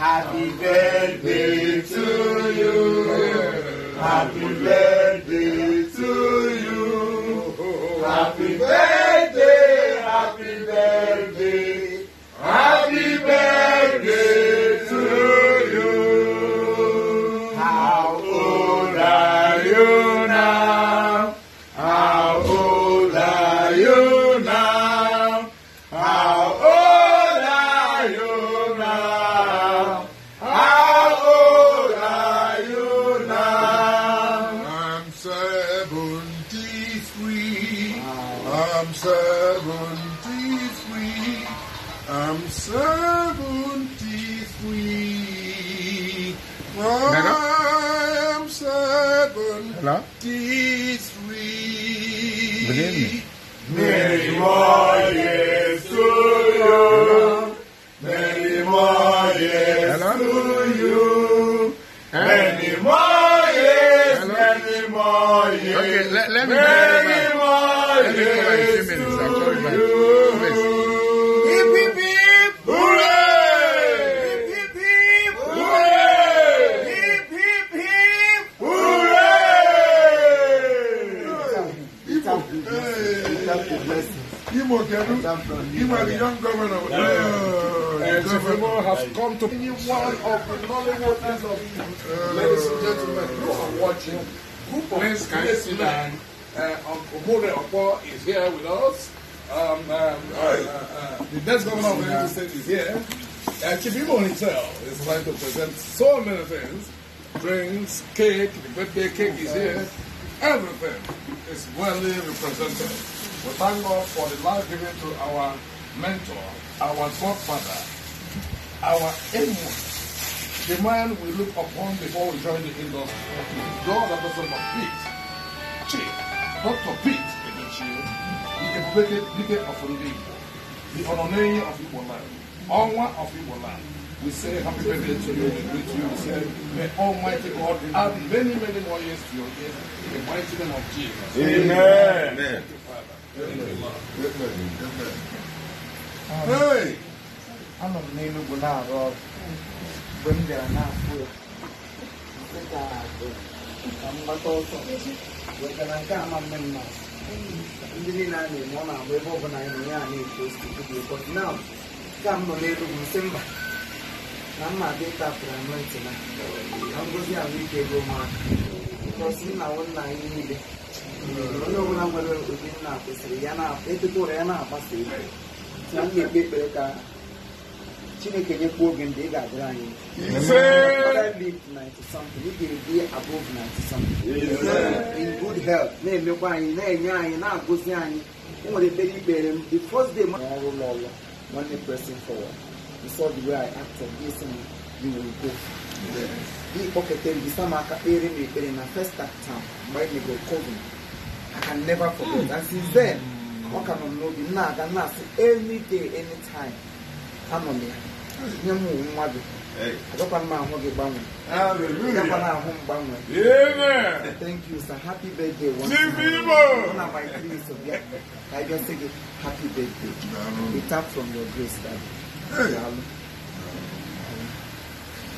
Happy birthday to you. Happy birthday to you. Happy birthday. am 73. I am 73. Many more years to you. Many more years to you. Many more years. Many more years. Okay, let, let me many more years. Let me minutes. Thank you. you. are the governor. Uh, of uh, ladies and gentlemen who are watching. of Please, is here with us. uh, the best governor of the United States is here. Uh, Kibimo himself is trying to present so many things. Drinks, cake, the birthday cake is here everything is well represented. We thank God for the life given to our mentor, our godfather, our aimon, the man we look upon before we join the industry. God has also of Pete, Chief, Dr. Pete Edochie, the great leader of Ndị the honorary of Igbo land, Onwa of Igbo We say happy birthday to you. We greet you. We say, may Almighty God add many, many more years to your years in the mighty name of Jesus. Amen. Amen. Hey! Anọ m n'Enugwu na-arụ ọrụ mgbe m bịara n'afọ ya ka m gbata ọsọ wetara nke ama mme mma ndị niile a na-eme ọ na-agba ebe ọ bụla anyị na ya na-eto osikwu dị ụkọ na nke a m na mma dị tapụrụ anụ na ngozi ahụike ego ụmụaka bọsi nna nna anyị niile hmm. onye ọbụla nwere ụdị nna kwesịrị ya na-akwa etụtụrụ ya na-agbasa ego. na m na-ekpe ekpere ka chineke nyekwa oge ndị ị ga-adịrị anyị ị ga-ebi above in good health na-emekwa anyị na-enye anyị na-agụzi anyị enwere ekpere ikpere m the first day ọrụ ụlọ ọrụ nwanne pressing forward you saw the way I acted, this and you will go. Gị kpọketere gị sama aka kpere m ekpere na first act town mgbe anyị megoro COVID. I can never forget. And since then, ọ ka nọ n'obi na-aga na-asị every day, anytime. Anọ m ya. Nye m nwa gị. Agakwana m ahụ gị gbanwee. Agakwana ahụ m gbanwee. Thank you sir. Happy birthday One of my three of ya. I just say happy birthday. We tap from your grace, daddy. Hey.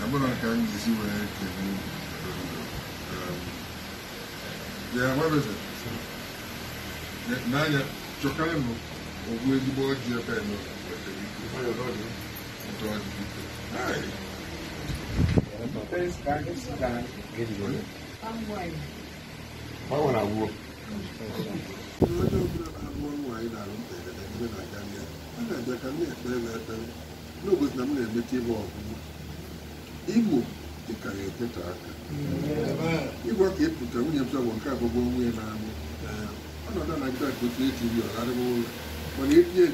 abụrụ ka m jizi wee ekele ya nwebeze n'anya chọkarị o ogwu ezigbo oji ebe a Gbanwere agwọ. Onye ọbụla na-agwọ nwa. na ka m na-ekpere na ekpere n'obodo na m na-emechi ibe ọgụgụ igbo dị ka ya eteta aka ịgwa ka ịpụta nwunye m sọgbọ nke abụọ nwunye na-amụ ọnọdụ na-aga otu eti ri ọgharịwa ụlọ mana etinye